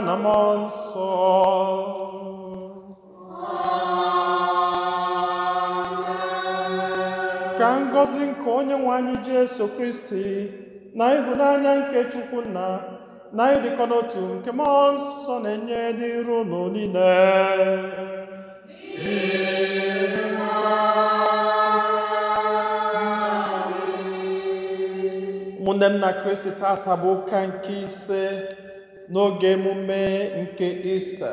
canamon sol. Ka ngọzi nke onye anyị Jesu Kristi na ịhụnanya nke Chukwu nna na ịdịkọ n'otu nke mmụọ nsọ na-enye dịru unu niile. ụmụnne m na Kristi tata bụ ụka nke ise n'oge emume nke Ista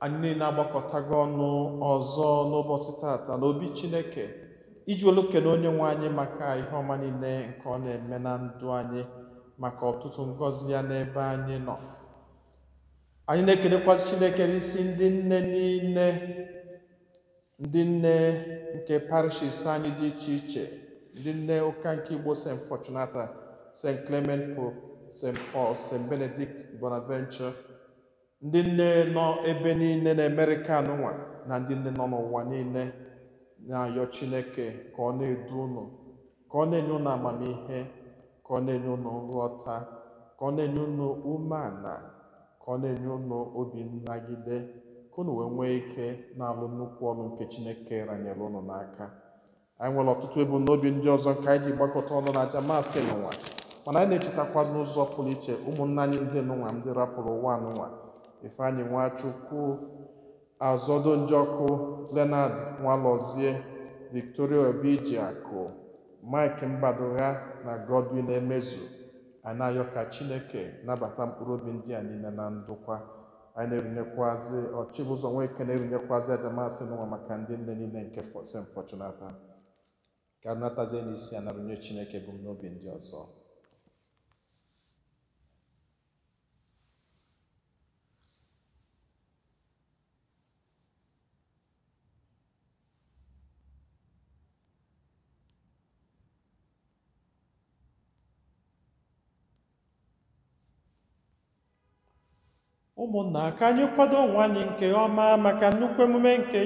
anyị niile agbakọtago ọnụ ọzọ n'ụbọchị tata n'obi Chineke iji olukene onye nwe anyị maka ihe ọma niile nke ọ na-eme na ndụ anyị maka ọtụtụ ngọzi ya n'ebe anyị nọ anyị na-ekenekwasị Chineke n'isi ndị nne niile ndị nne nke parishis anyị dị iche iche ndị nne ụka nke Igbo St. Fortunata St. Clement Pope St. Paul, St. Benedict, Bonaventure, ndị nne nọ ebe niile na amerika nwa na ndị nne nọ n'ụwa niile na-ayọ Chineke ka ọ na-edu ụnụ, ka ọ na-enye ụnụ amamihe ka ọ na-enye ụnụ nghọta ka ọ na-enye ụnụ umeala ka ọ na-enye ụnụ obi nnagide ka unu wee nwee ike na-alụ nnukwu ọnụ nke Chineke ranyere ụnụ n'aka anyị nwere ọtụtụ ebumnobi ndị ọzọ nke anyị ji gbakọta ọnụ na aja maasị n'ụwa mana anyị na-echetakwa n'ụzọ pụrụ iche ụmụnna anyị ndị nụnwa ndị rapụrụ ụwa anụnwa Ifeanyị Nwachukwu Azọdụnjọkụ Leonard Nwalọzie Victoria Obijiakụ Mike Mbadogha na Godwin Emezu anyị na-ayọ ka Chineke nabata mkpụrụ obi ndị a niile na ndụkwa anyị na-erunyekwazị ọchịbụzọ nweke na erunyekwazi adamasị n'ụwa maka ndị nne niile nke St. fọchunata ka arụnatazie n'isi a na chineke Chineke n'obi ndị ọzọ ụmụnna ka anyị kwado onwe nke ọma maka nnukwu emume nke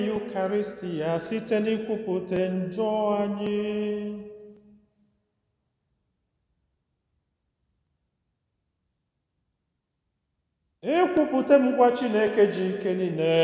ya site n'ikwupụta njọ anyị ịkwupụta m ngwa Chineke ji ike niile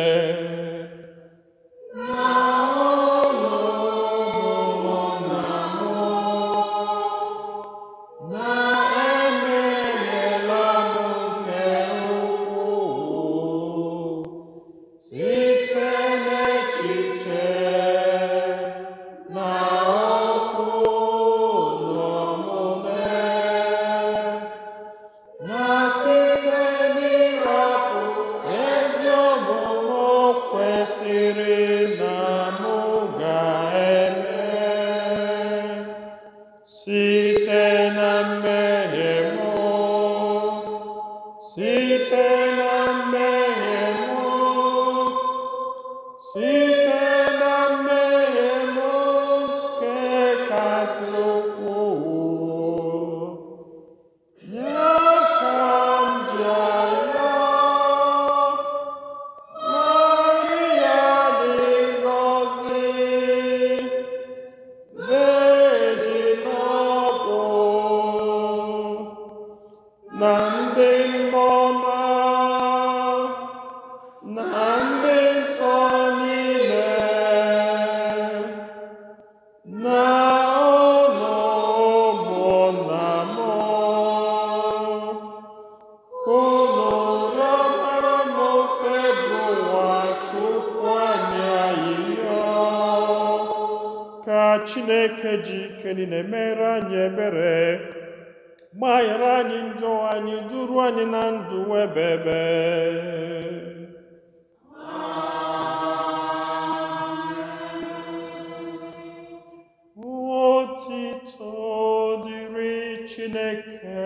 Chineke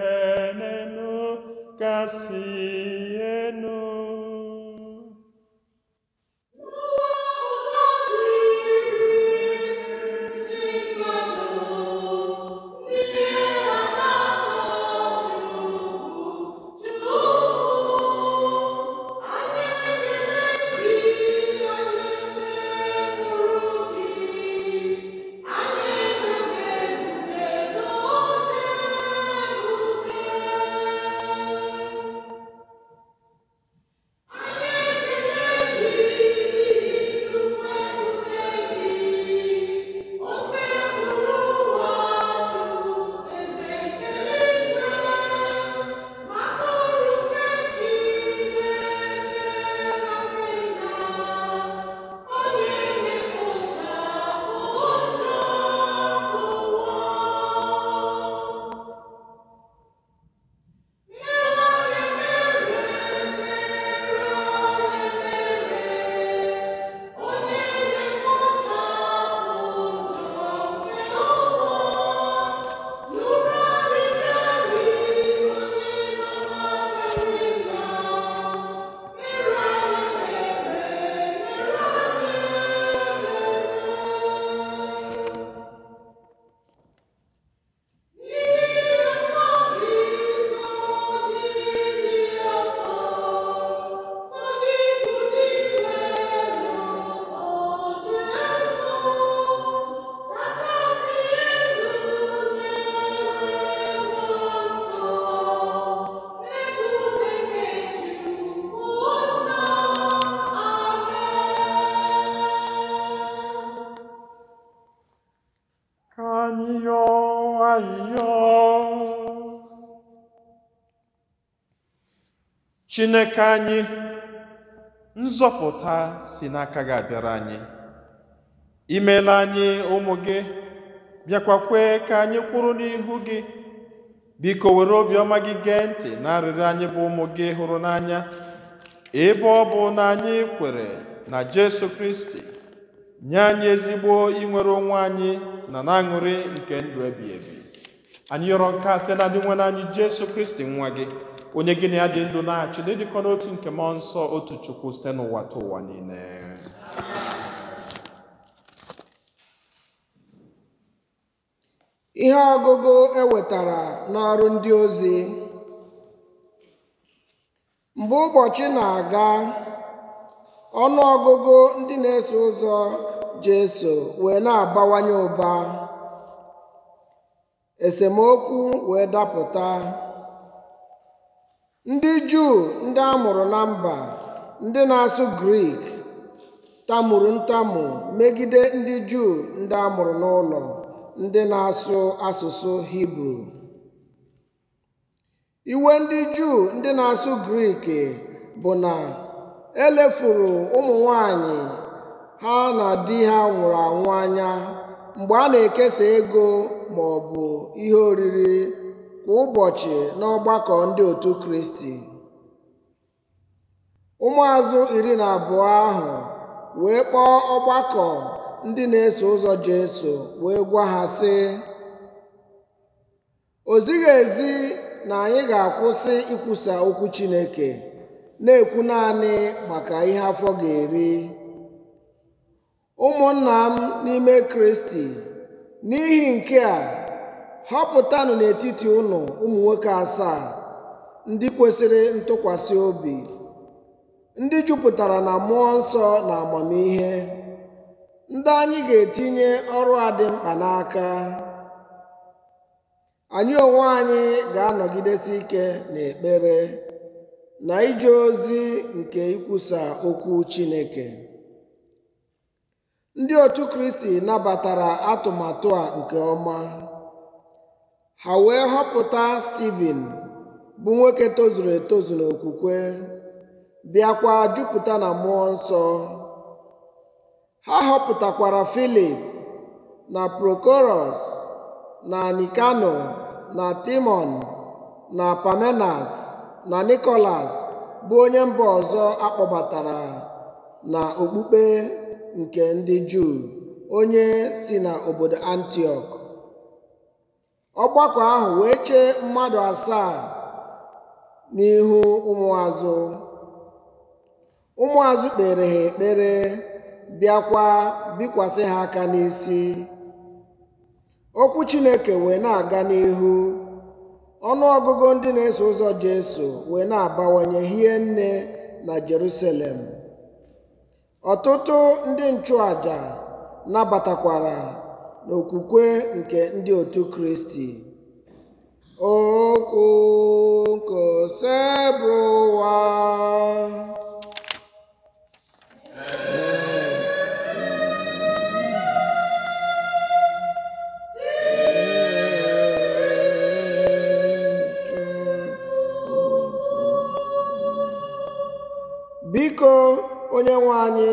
nenu kasị enu chineke anyị nzọpụta si n'aka gị abịara anyị imeela anyị ụmụ gị bịakwa kwee ka anyị kwụrụ n'ihu gị biko were obiọma gị gee ntị na arịrị anyị bụ ụmụ gị hụrụ n'anya ebe ọ bụ na anyị kwere na Jesu Kristi nye anyị ezigbo inwere onwe anyị na na-aṅụrị nke ndụ ebi ebi anyị yọrọ nke a site na nwe anyị Jesu Kristi nwa gị onye gịnị ya dị ndụ na-achị na ịdịkọ n'otu nke mmụọ nsọ otu chukwu site n'ụwa ta ụwa niile ihe ọgụgụ ewetara n'ọrụ ndị ozi mgbe ụbọchị na-aga ọnụ ọgụgụ ndị na-eso ụzọ Jesu wee na-abawanye ụba esemokwu wee dapụta ndị juu ndị a mụrụ na mba ndị na-asụ grik tamuru ntamu megide ndị juu ndị a mụrụ n'ụlọ ndị na-asụ asụsụ hibru iwe ndị juu ndị na-asụ grik bụ na elefuru ụmụ nwanyị ha na di ha nwụrụ anwụ anya mgbe a na-ekesa ego ma ọ bụ ihe oriri kwa ụbọchị n'ọgbakọ ndị otu Kristi ụmụazụ iri na abụọ ahụ wee kpọọ ọgbakọ ndị na-eso ụzọ Jesu wee gwa ha sị o zighị ezi na anyị ga-akwụsị ikwusa okwu Chineke na-ekwu naanị maka ihe afọ ga-eri ụmụnna m n'ime Kristi n'ihi nke a họpụtanụ n'etiti ụnụ ụmụ nwoke asaa ndị kwesịrị ntụkwasị obi ndị jupụtara na mmụọ nsọ na amamihe ndị anyị ga-etinye ọrụ a mkpa n'aka anyị onwe anyị ga-anọgidesi ike na ekpere na ije ozi nke ikwusa okwu Chineke ndị otu Kristi nabatara atụmatụ a nke ọma ha wee họpụta Stivin bụ nwoke tozuru etozu n'okwukwe bịakwa jupụta na mmụọ nsọ ha họpụtakwara Filip na Prokoros na Nikano na Timon na Pamenas na Nikolas bụ onye mba ọzọ akpọbatara na okpukpe nke ndị Juu onye si na obodo ọgbakọ ahụ wee chee mmadụ asaa n'ihu ụmụazụ ụmụazụ kpere ha ekpere bịakwa bikwasị ha aka n'isi okwu chineke wee na-aga n'ihu ọnụọgụgụ ndị na-eso ụzọ jesu wee na-abawanye hie nne na jerusalem ọtụtụ ndị nchụaja nabatakwara n'okwukwe nke ndị otu kristi okwu nkosebụwa biko onye nwe anyị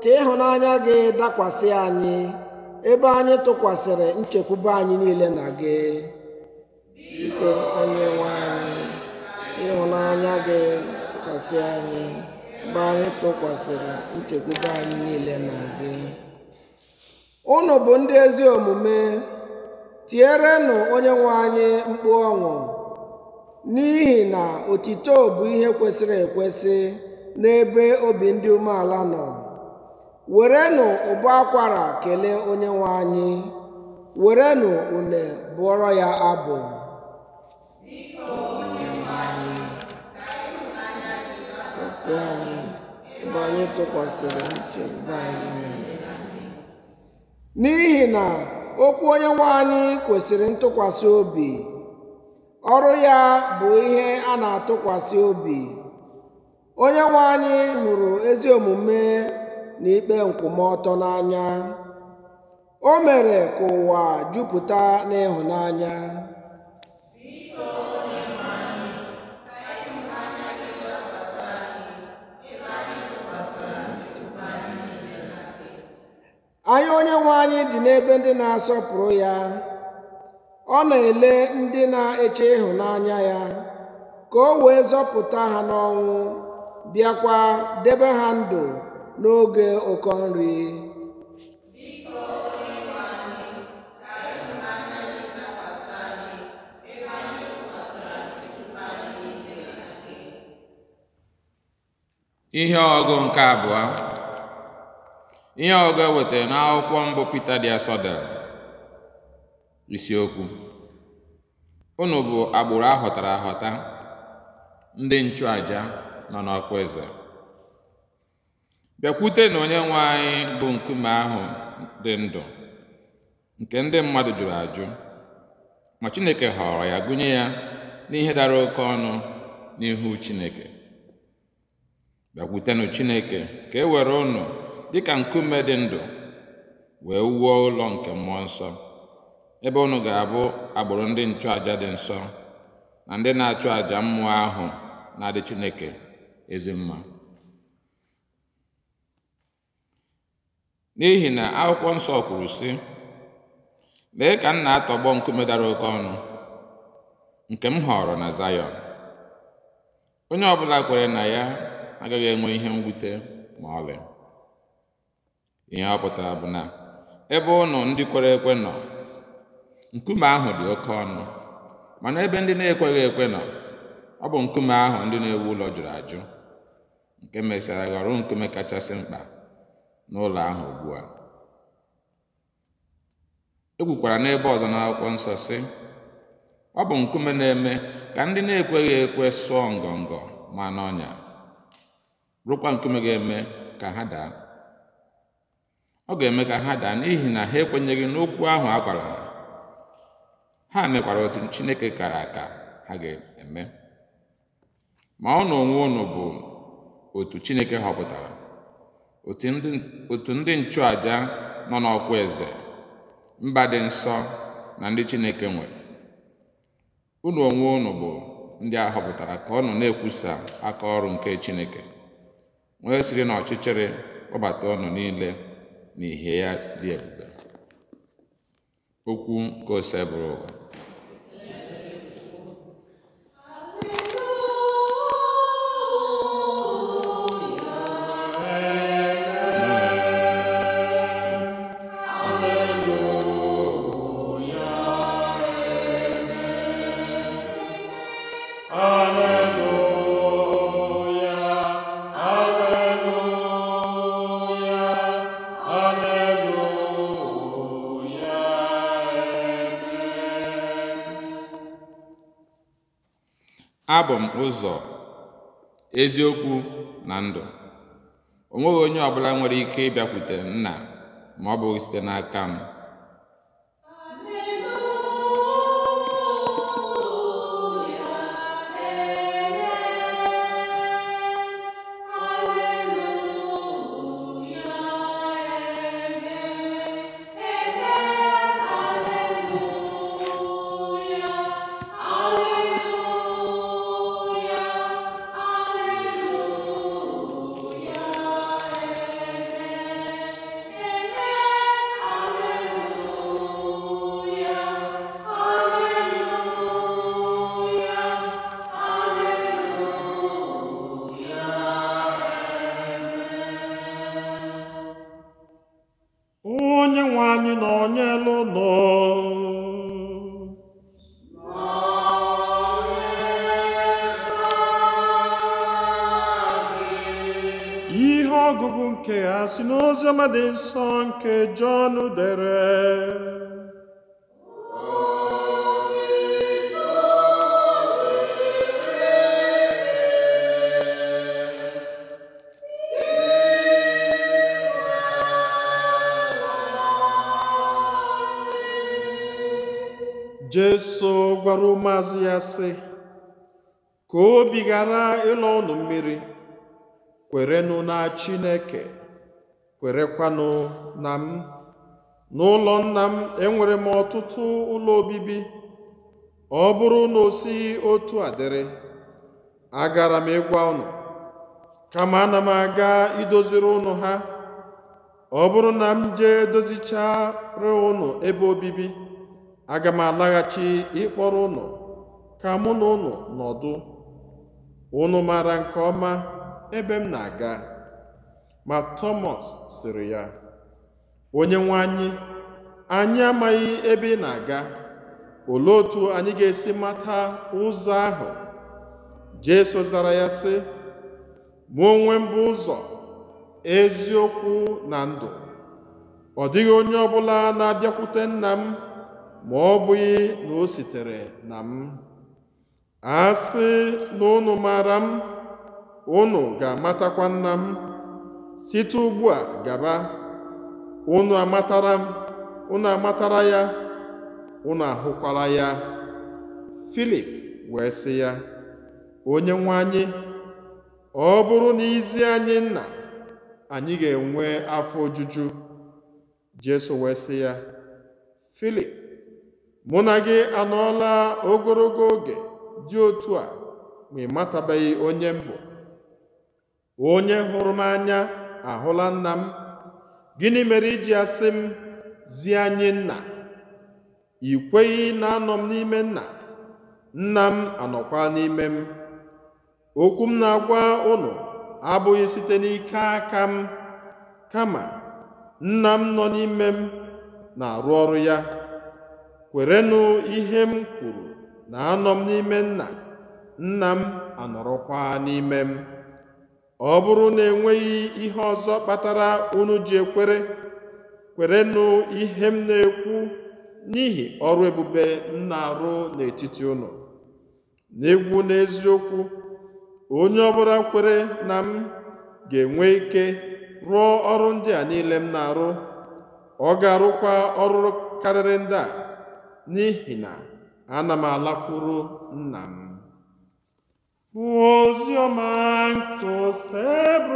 ka ịhụnanya gị dakwasị anyị ebe anyị tụkwasịrị nchekwube anyị niile na gị biko onye nwe anyị ịhụnanya gị tụkwasị anyị ebe anyị tụkwasịrị nchekwube anyị niile na gị unu bụ ndị ezi omume tierenụ onye nwe anyị mkpu ọṅụ n'ihi na otito bụ ihe kwesịrị ekwesị n'ebe obi ndị umeala nọ werenụ ụbọ akwara kelee onye nwe anyị werenụ une bụọrọ ya abụ n'ihi na okwu onye nwe anyị kwesịrị ntụkwasị obi ọrụ ya bụ ihe a na-atụkwasị obi onye nwe anyị hụrụ ezi omume na ikpe nkwụmọtọ n'anya o mere ka ụwa jupụta n'ịhụnanya anya nwe anyị dị n'ebe ndị na-asọpụrụ ya ọ na-ele ndị na-eche ịhụnanya ya ka o wee zọpụta ha n'ọnwụ bịakwa debe ha ndụ n'oge ụkọ nri ihe ọgụ nke abụọ ihe ọgụ ewetara n'akwụkwọ mbụ Pita dị asọ dere isiokwu unu bụ agbụrụ ahọtara ahọta ndị nchụaja nọ n'ọkụ eze bịakwute na onye nwe anyị bụ nkume ahụ dị ndụ nke ndị mmadụ jụrụ ajụ ma Chineke họrọ ya gụnye ya n'ihe dara oke ọnụ n'ihu Chineke bịakwutenụ Chineke ka e were dị ka nkume dị ndụ wee wuo ụlọ nke mmụọ nsọ ebe ụnụ ga-abụ agbụrụ ndị nchụàjà dị nsọ na ndị na-achụ àjà mmụọ ahụ na-adị Chineke ezi mma n'ihi na akwụkwọ nsọ kwuru sị lee ka m na-atọgbọ nkume dara oke ọnụ nke m họrọ na Zayọn onye ọbụla kwere na ya agaghị enwe ihe mwute ma ọlị ihe ọ pụtara bụ na ebe ụnụ ndị kwere ekwe nọ nkume ahụ dị oke ọnụ mana ebe ndị na-ekweghị ekwe nọ ọ bụ nkume ahụ ndị na-ewu ụlọ jụrụ ajụ nke mesịara ghọrọ nkume kachasị mkpa n'ụlọ ahụ ugbu a e kwukwara n'ebe ọzọ n'akwụkwọ nsọ sị ọ bụ nkume na-eme ka ndị na-ekweghị ekwe sụọ ngọngọ ma n'ọnya rụkwa nkume ga-eme ka ha daa ọ ga-eme ka ha daa n'ihi na ha ekwenyeghị n'okwu ahụ a gwara ha ha mekwara otu Chineke kara aka ha ga-eme ma ọ na onwe unu bụ otu Chineke họpụtara otu ndị nchụàja nọ n'ọkwa eze mba dị nsọ na ndị Chineke nwere unu onwe unu bụ ndị a họpụtara ka ọnụ na-ekwusa aka ọrụ nke Chineke nwee siri na ọchịchịrị kpọbata ọnụ niile na ìhè ya dị ebube okwu nke ose bụrụ m ụzọ eziokwu na ndụ o nweghị onye ọbụla nwere ike ịbịakwute nna ma ọ bụghị site n'aka m ọgụgụ nke ha si n'oziọma dị nsọ nke Jọn dere Jesu gwara ụmụazụ ya sị ka obi ghara ịlọ ụnụ mmiri kwerenụ na chineke kwerekwanụ na m n'ụlọ nna m enwere m ọtụtụ ụlọ obibi ọ bụrụ na o otu a dịrị agara m ịgwa ụnụ kama ana m aga idoziri ụnụ ha ọ bụrụ na m jee dozichara ụnụ ebe obibi aga m alaghachi ịkpọrọ ụnụ ka mụ na ụnụ nọdụ ụnụ maara nke ọma ebe m na-aga ma tomas sịrị ya onye nwe anyị anyị amaghị ebe ị na-aga olee otu anyị ga-esi mata ụzọ ahụ Jesu zara ya sị mụ onwe m bụ ụzọ eziokwu na ndụ ọ dịghị onye ọbụla na-abịakwute nna m ma ọ bụghị na o sitere na m a sị na unu maara m unu ga-amatakwa nna m site ugbu a gaba unu amatara m unu amatara ya unu ahụkwara ya Filip wee sị ya onye nwe anyị ọ bụrụ na izi anyị nna anyị ga-enwe afọ ojuju Jesu wee sị ya Filip mụ na gị anọọla ogologo oge dị otu a ma ị matabeghị onye mbụ onye hụrụ m anya ahụla nna m gịnị mere iji asị m zi anyị nna ị na anọ m n'ime nna nna m anọkwa n'ime m okwu m na-agwa ụlọ abụghị site n'ike aka m kama nna m nọ n'ime m na-arụ ọrụ ya kwerenụ ihe m kwuru na anọ m n'ime nna nna m anọrọkwa n'ime m ọ bụrụ na enweghị ihe ọzọ kpatara unu ji ekwere kwerenụ ihe m na-ekwu n'ihi ọrụ ebube m na-arụ n'etiti ụnọ. n'egwu n'eziokwu onye ọbụla kwere na m ga-enwe ike rụọ ọrụ ndị a niile m na-arụ ọ ga-arụkwa ọrụ karịrị ndị a n'ihi na ana m alakwuru nna m Use your mind to save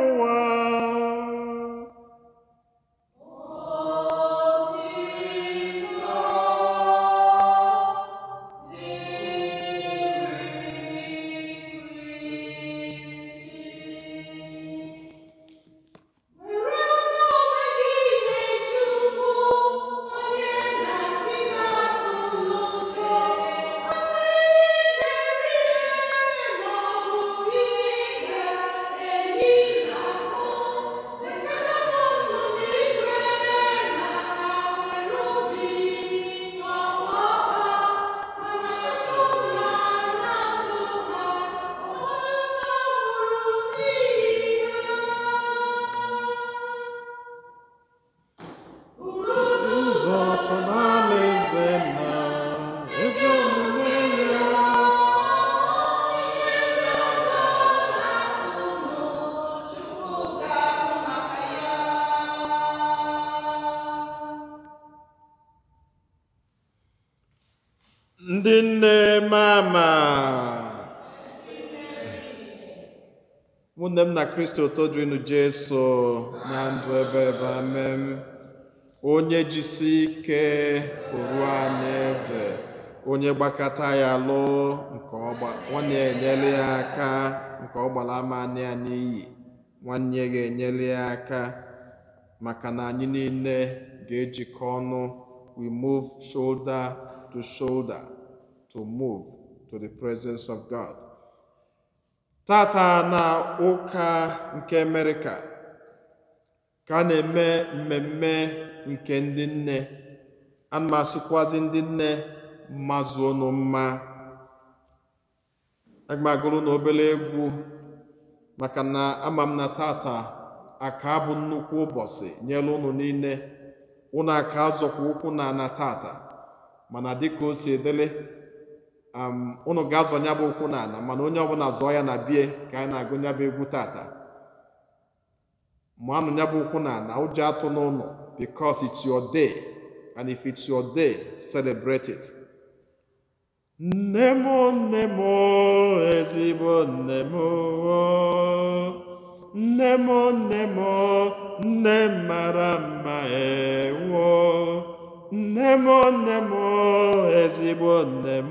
Kristo todrinu Jesu na ndụ ebe ebe amem onye jisi ike oru anyị eze onye gbakọta ya lo nke ọ na-enyere ya aka nke ọ gbara ama nwanne ga ya aka maka na anyị niile ga-ejikọ ọnụ we move shoulder to shoulder to move to the presence of God tata na ụka nke Amerịka ka a na-eme mmemme nke ndị nne ana m ndị nne mazụ unu mma aga na obere egwu maka na ama m na tata aka bụ nnukwu ụbọchị nyere unu niile unu aka zọkwa ụkwụ na ana tata mana dịka o si edele unu ga-azọ nya bụ ụkwụ n'ala mana onye ọbụla zọọ ya na bie ka anyị na-agụ nya bụ egwu tata manụ nya bụ ụkwụ n'ala ụjọ atụ n'ụlọ because it's your day and if it's your day celebrate it nne m nne m ezigbo nne m nne m nne m nne mara mma ewo nne m nne m ezigbo nne m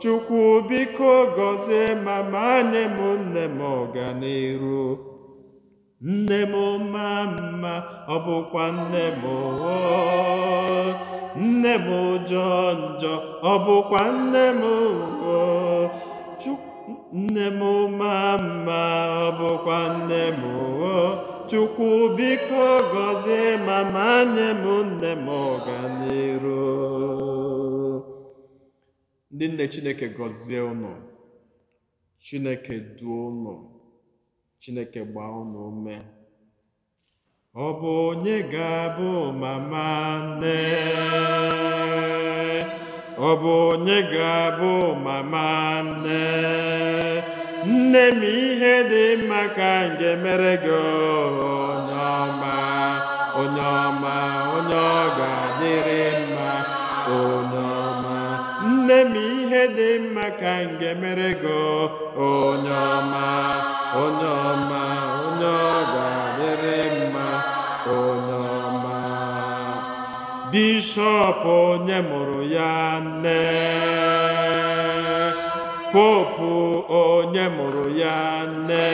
chukwu biko gọzie mama nye m nne m ọganiru nne m ma mma ọ bụkwa nne m nne m jọ njọ ọ bụkwa nne m nne m ma mma ọ bụkwa nne m Chukwu biko gọzie mama nye m nne m ọganiru ndị nne Chineke gọzie ụnụ Chineke duo ụnụ Chineke gbaa ụnụ ume ọ bụ onye ga-abụ mama nne ọ bụ onye ga-abụ mama nne nne ihe dị mma ka nke mere gị onye ọma onye ọma onye ọ ga-adịrị mma onye ọma nne m ihe dị mma ka nke mere gị onye ọma onye ọma onye ọ ga-adịrị mma onye ọma bishọp onye mụrụ ya nne popu onye mụrụ ya nne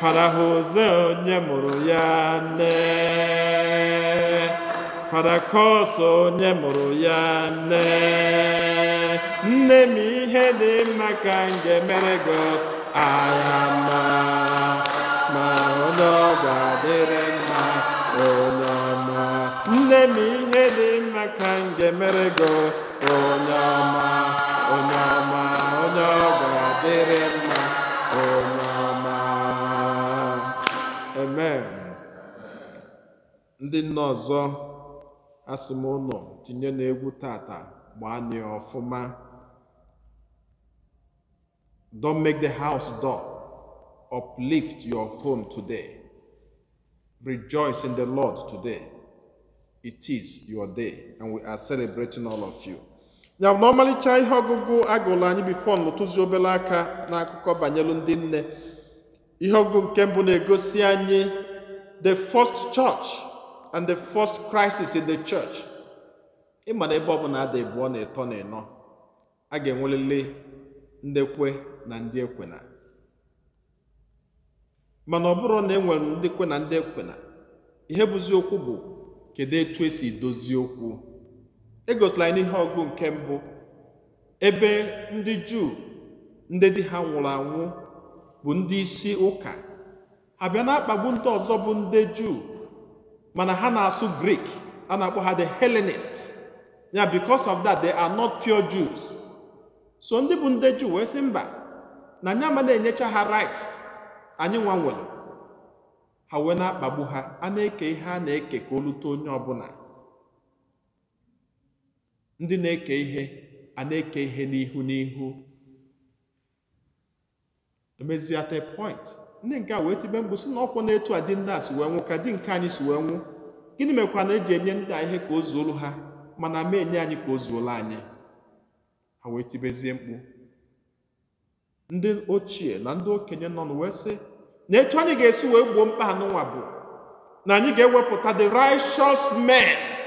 farahoze onye mụrụ ya nne farakos onye mụrụ ya nne nne m ihe dị mma ka m ga-emere gị aya ma ma onye ọ ga-adịrị mma onye ọma nne m ihe dị mma ka m ga-emere gị onye ọma onye ọma Oh amen ndị ọzọ asị m tinye n'egwu tata ọfụma don't make the house dull uplift your home today rejoice in the lord today it is your day and we are celebrating all of you ya na ọmalịcha ihe ọgụgụ agụlụ anyị bifo n'ụtụzi obere aka n'akụkọ banyelu ndị nne ihe ọgụgụ nke mbụ na-egosi anyị the first church and the first crisis in the church ịma na ebe ọbụla ada ebuo na ịtọ na ịnọ a ga-enwelele ndị kwe na ndị ekwena mana ọ bụrụ na e nwere ndị kwe na ndị ekwena ihe bụzi okwu bụ kedu etu esi dozie okwu egosila ihe n'ihe ọgụ nke mbụ ebe ndị juu ndị dị ha nwụrụ anwụ bụ ndị isi ụka ha bịa na-akpagbu ndị ọzọ bụ ndị juu mana ha na-asụ grik a na-akpọ ha the helenist ya because of that they are not pure jews so ndị bụ ndị juu wee sị mba na anyị ma na-enyecha ha rights anyị nwa ha wee na-akpagbu ha a na-eke ihe a na-eke ka o lute onye ọbụla ndị na-eke ihe a na-eke ihe n'ihu n'ihu emezia te point ndị nke a wee tibe mbụ si na ọkwụ na-etu a dị ndị a si wee nwụ ka di nke anyị si wee nwụ gịnị mekwa na eji enye ndị a ihe ka o zuolu ha mana ma enye anyị ka o zuolu anyị ha wee tibezie mkpu ndị ochie na ndị okenye nọ wee sị na etu anyị ga-esi wee gbuo mkpa anụnwa bụ na anyị ga-ewepụta the righteous men.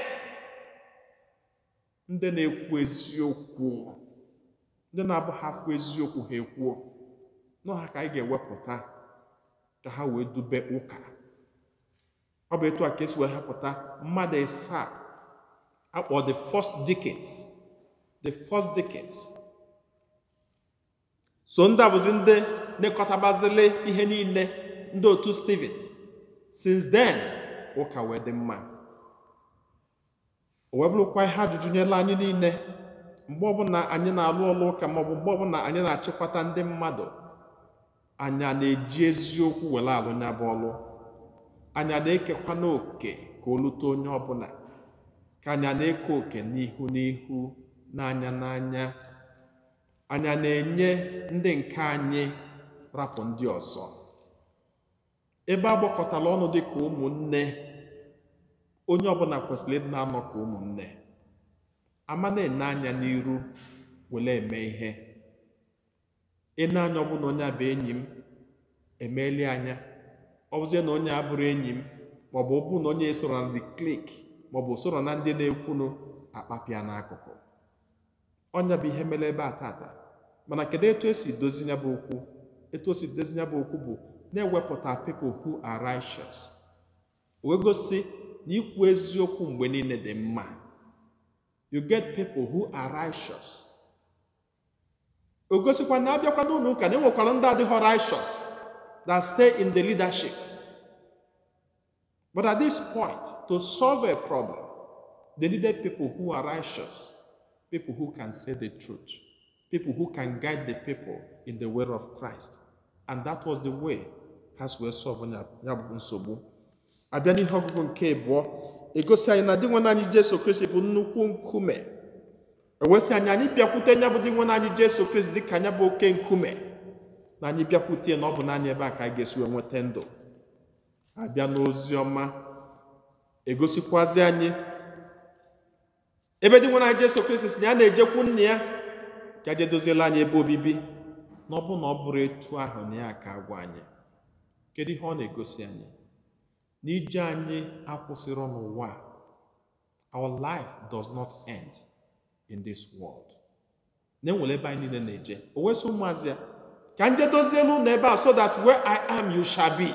ndị na-ekwu eziokwu ndị na-abụghị afọ eziokwu ha ekwuo n'ọha ka anyị ga-ewepụta ka ha wee dube ụka ọ bụ etu a ka esi wee hapụta mmadụ ịsa akpọ the first Dickens the first Dickens so ndị abụzi ndị nekọtabazili ihe niile ndị otu steven since then ụka wee dị mma o wee bụrụkwa ihe ajụjụ nyela anyị niile mgbe ọbụla anyị na-alụ ọlụ ụka maọbụ mgbe ọbụla anyị na-achịkwata ndị mmadụ anya na-eji eziokwu were alụ ọlụ anya na-ekekwa n'oke ka o onye ọbụla ka anya na-eke oke n'ihu n'ihu n'anya n'anya Anya na-enye ndị nke anyị rapụ ndị ọzọ ebe a ọnụ dịka ụmụnne onye ọbụla kwesịrị ịdị na-anọ ka ụmụnne ama na-ene anya n'iru were eme ihe ene anya ọbụla onye abụ enyi m emeeli anya ọ bụzie na onye abụrụ enyi m maọbụ ọbụ na onye soro na klik maọbụ soro na ndị na-ekwunu akpapịa n'akụkụ ọnya bụ ihe mere ebe a tata mana kedu etu esi dozi ya bụ okwu etu o si dozi ya bụ okwu bụ na-ewepụta people hu are wee gosi ikwu eziokwu mgbe niile dị mma you get people who are righteous o gosikwa na abịakwa n'ụlọ ụka na enwekwara ndị adịghị righteous that stay in the leadership but at this point to solve a problem they needed people who are righteous people who can say the truth people who can guide the people in the way of Christ and that was the way ha we wee solve ya bụ nsogbu abịa n'ihe ọgụgụ nke abụọ egosi anyị na dị nwe anyị Jesu Kristi bụ nnukwu nkume ewesị anyị anyị bịakwute nya bụ dị nwe anyị Jesu Kristi dịka anya bụ oke nkume na anyị bịakwute na ọ bụ naanị ebe a ka anyị ga-esi wee nweta ndụ abịa n'ozi ọma egosikwazi anyị ebe dị nwe anyị Jesu Kristi si na ya na-ejekwu nna ya ka e je doziela anyị ebe obibi na ọ bụ na ọ bụrụ etu ahụ na ya ka agwa anyị kedu ihe ọ na-egosi anyị n'ije anyị akwụsịrọ n'ụwa our life does not end in this world na-enwere ebe anyị niile na-eje o wesị ụmụazị ya ka nje dozie n'ụlọ ebe a so that where i am you shall be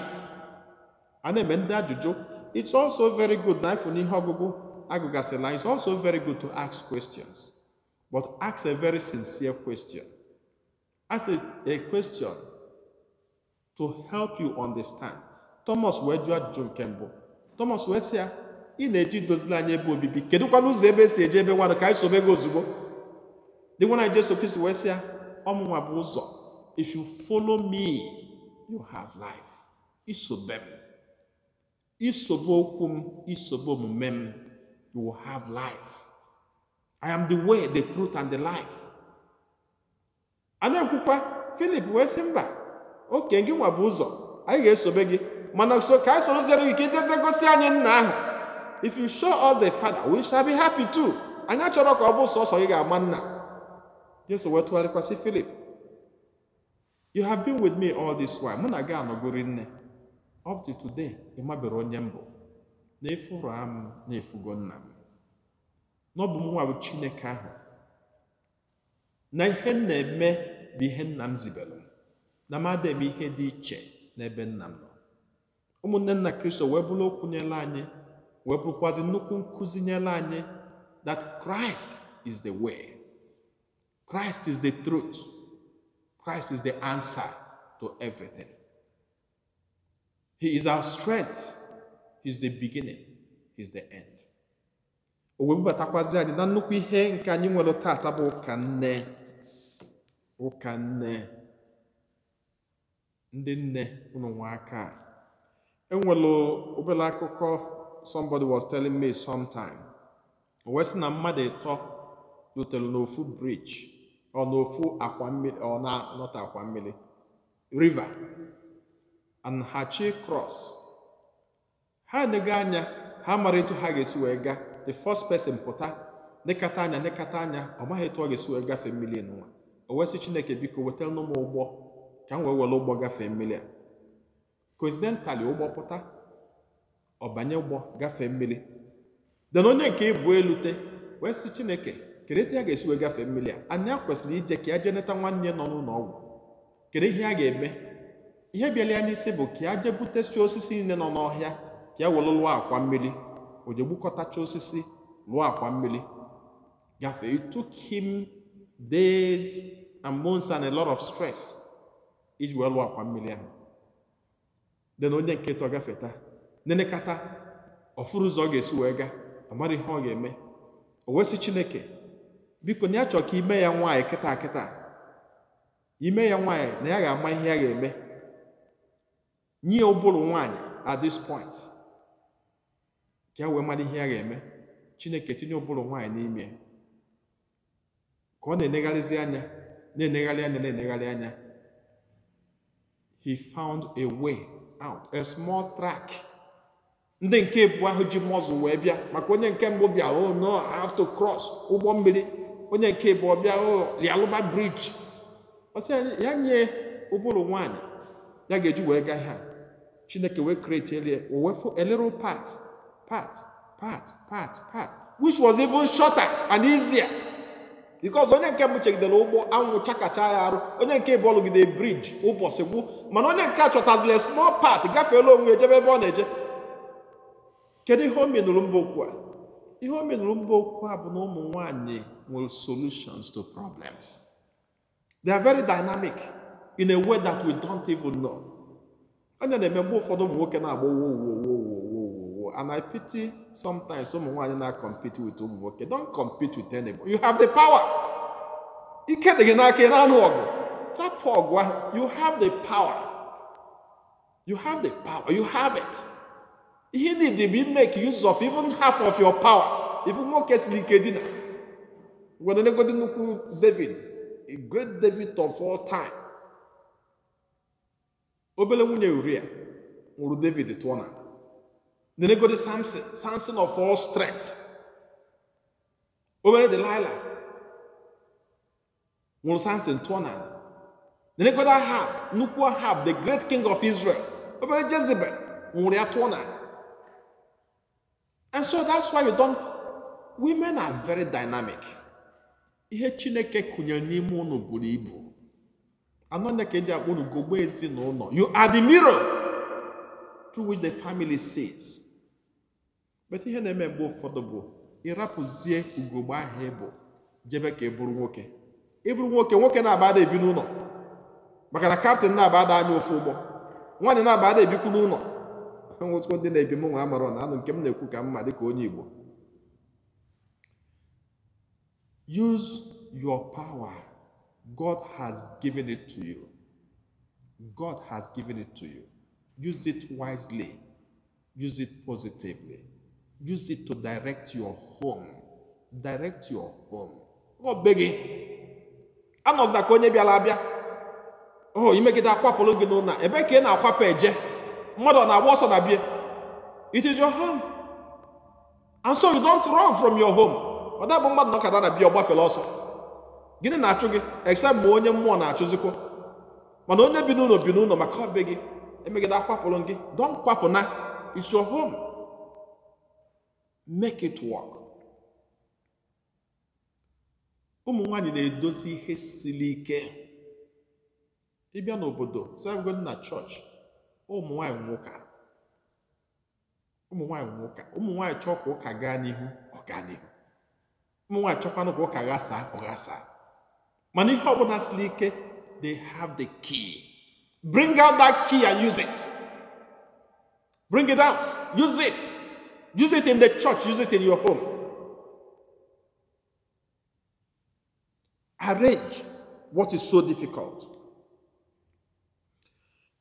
a na-eme ndị ajụjụ it's also very good na ịfụ n'ihe ọgụgụ agụgasịla it's also very good to ask questions but ask a very sincere question ask a question to help you understand Thomas wee jụọ ajụjụ nke mbụ Thomas wee sị ya ị na-eji dozila anyị ebe obibi kedụkwana ụzọ ebe esi eje ebe nwadụ ka anyị sobe gị ozugbo dị nwana anyị Jesu Kristo wee sị ya ọmụnwa bụ ụzọ if you follow me you have life isobe m isobe okwu m isobe omume m you will have life I am the way the truth and the life a na-ekwukwa Filip wee sị mba oke gị nwa bụ ụzọ anyị ga-esobe gị mana so ka anyị soro zere gị ka ijeze gosi anyị nna ahụ if you show us the father we shall be happy too anyị achọrọ ka ọ bụ sọsọ gị ga-ama nna jesu wee tụgharịkwasị filip you have been with me all this while mụ na gị anọgori nne up to today ị mabere onye mbụ na-efuru m na-efugo nna m n'ọbụ nwa bụ chineke ahụ na ihe m na-eme bụ ihe nna m zibere m na m adịghị ihe dị iche n'ebe nna m nọ ụmụnne nna kristo wee bụrụ okwu anyị wee bụrụkwazi nnukwu nkụzi nyere anyị that Christ is the way Christ is the truth Christ is the answer to everything he is our strength he is the beginning he is the end o wee bubatakwazi anyị na nnukwu ihe nke anyị nwere tata bụ ụka nne ụka nne ndị nne ụnụ aka enwere obere akụkọ somebody was telling me sometime o wee sị na mmadụ ịtọ rutere n'ofu bridge ọ n'ofu akwa mmiri ọ na-anọta akwa mmiri river and hachi cross ha enego anya ha mara etu ha ga-esi wee gaa the first person pụta nekata anya nekata anya ọ maghị etu ọ ga-esi wee gafee mmiri nwa o wee sị Chineke biko wetara m ụgbọ ka m wee were ụgbọ gafee mmiri a coincidentally ụgbọ pụta ọbanye ụgbọ gafee mmiri de onye nke ịbụ elute wee sị chineke kedu etu ya ga-esi wee gafee mmiri a anyị a kwesịrị ije ka ya jee neta nwanne nọ n'ụlọ ọgwụ kedu ihe a ga-eme ihe bịala ya n'isi bụ ka ya jee butechi osisi niile nọ n'ọhịa ka ya were lụọ akwa mmiri o jee gbukọtacha osisi lụọ akwa mmiri gafee it took him days and months and a lot of stress iji wee lụọ akwa mmiri ahụ dị na onye nkịtị ọ gafeta nenekata ọfụrụ ụzọ ọ ga-esi wee gaa amara ihe ọ ga-eme o wesị chineke biko na ya chọọ ka ime ya nwaanyị kịta kịta ime ya nwaanyị na ya ga-ama ihe ya ga-eme nye ụbụrụ nwaanyị at this point ka ya wee mara ihe ya ga-eme chineke tinye ụbụrụ nwaanyị n'ime ka ọ na-enegharịzi anya na-enegharị anya na-enegharị anya he found a way out a small track ndị nke bụ ahụ ji mọzụ wee bịa maka onye nke mbụ bịa oh no I have to cross ụgbọ mmiri onye nke bụ ọbịa lialụba oh, bridge ọsị ya nye ụbụrụ nwanyị ya ga-eji wee gaa ha chineke wee create elie wee a elero part part part part part which was even shorter and easier. because onye nke mbụ chegidere ụgbọ anwụ chakacha ya arụ onye nke bụ ọlụgide briji ụbọchị gwụ mana onye nke a chọtazila small part gafeela onwe ejebe ebe ọ na-eje kedu ihe o menụrụ mba okwu a ihe o menụrụ mba okwu a bụ na ụmụ nwanyị nwere solutions to problems they are very dynamic in a way that we don't even know onye na-eme mgbe ụfọdụ ụmụ nwoke na-agba owo owo owo people. And I pity sometimes someone and I compete with Umuwoke. Don't compete with anybody. You have the power. You have the power. You have the power. You have it. He need to be make use of even half of your power. If Umuwoke silikedina. When they go to David, a great David of all time. Obele nwunye Uria David tụọ Nenegodi Samson, Samson of all strength. Obere Delilah. Nwụrụ Samson tụọ n'ala. Nenegodi Ahab, nnukwu Ahab, the great king of Israel. Obere Jezebel nwụrụ ya tụọ And so that's why we don't, women are very dynamic. Ihe Chineke kụnyere n'ime ụnụ buru ibu. Anọ nne ka eji akpọ unu gogbo ezinụlọ. You are the mirror. through which the family sees bete ihe na-eme mgbe ụfọdụ bụ ịrapụzie ugogbe ahịa ịbụ jebe ka ị bụrụ nwoke ịbụrụ nwoke nwoke na-abada ebi n'ụlọ maka na kaptịn na-abada anya ofu ụgbọ nwaanyị na-abada ebikwu n'ụlọ nwụtụkọ ndị na-ebi m nwa amara na anụ nke m na-ekwu ka mma dịka onye Igbo use your power God has given it to you God has given it to you use it wisely use it positively Use it to direct your home. Direct your home. Ọ beghị. Anọzila ka onye bịara abịa. O imegide akwapụrụ gị n'ụlọ ebe ka ị na-akwapụ eje mmadụ na-agba ọsọ na bie. It is your home. And so you don't run from your home. Ọ dabụ mmadụ nọkọta na bia ọ gbafere ọsọ. Gịnị na-achụ gị except ma onye mmụọ na-achụzikwa mana onye bi n'ụlọ bi n'ụlọ maka ọ be gị emegide akwapụrụ gị don na. it's your home. make it work ụmụ nwanyị na-edozi ihe siri ike ịbịa n'obodo sịagodi na chọọchị ụmụ nwanyị nwụka ụmụ nwanyị nwụka ụmụ nwanyị chọọ ka ụka gaa n'ihu ọ gaa n'ihu ụmụ nwanyị chọkwanụ ka ụka ghasaa ọ mana ihe ọbụla siri ike they have the key bring out that key and use it bring it out use it Use it in the church, use it in your home. Arrange what is so difficult.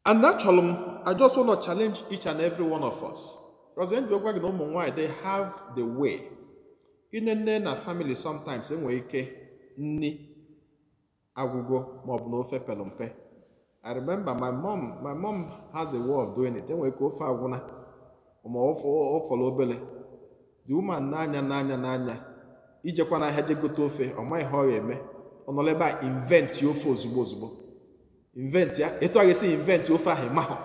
And naturally, I just want to challenge each and every one of us. Because then you no more they have the way. In a family sometimes enwe ike nni agwụgwọ ma ọ na ofe pelompe. I remember my mom, my mom has a way of doing it. Enwe ike ofe agwụna. ma ọ fọrọ obere the woman na-anya n'anya na ijekwa n'ahịa je gote ofe ọ maghị ihe ọrịa eme ọ nọrọ ebe a inventị ofe ozugbo ozugbo inventị ya etu a ga-esi inventị ofe ahụ ịmahụ